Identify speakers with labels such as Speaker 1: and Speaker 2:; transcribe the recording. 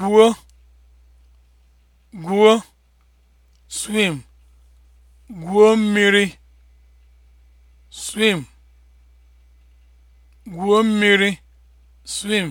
Speaker 1: gwuo gwuo swim gwuo mmiri swim
Speaker 2: gwuo mmiri swim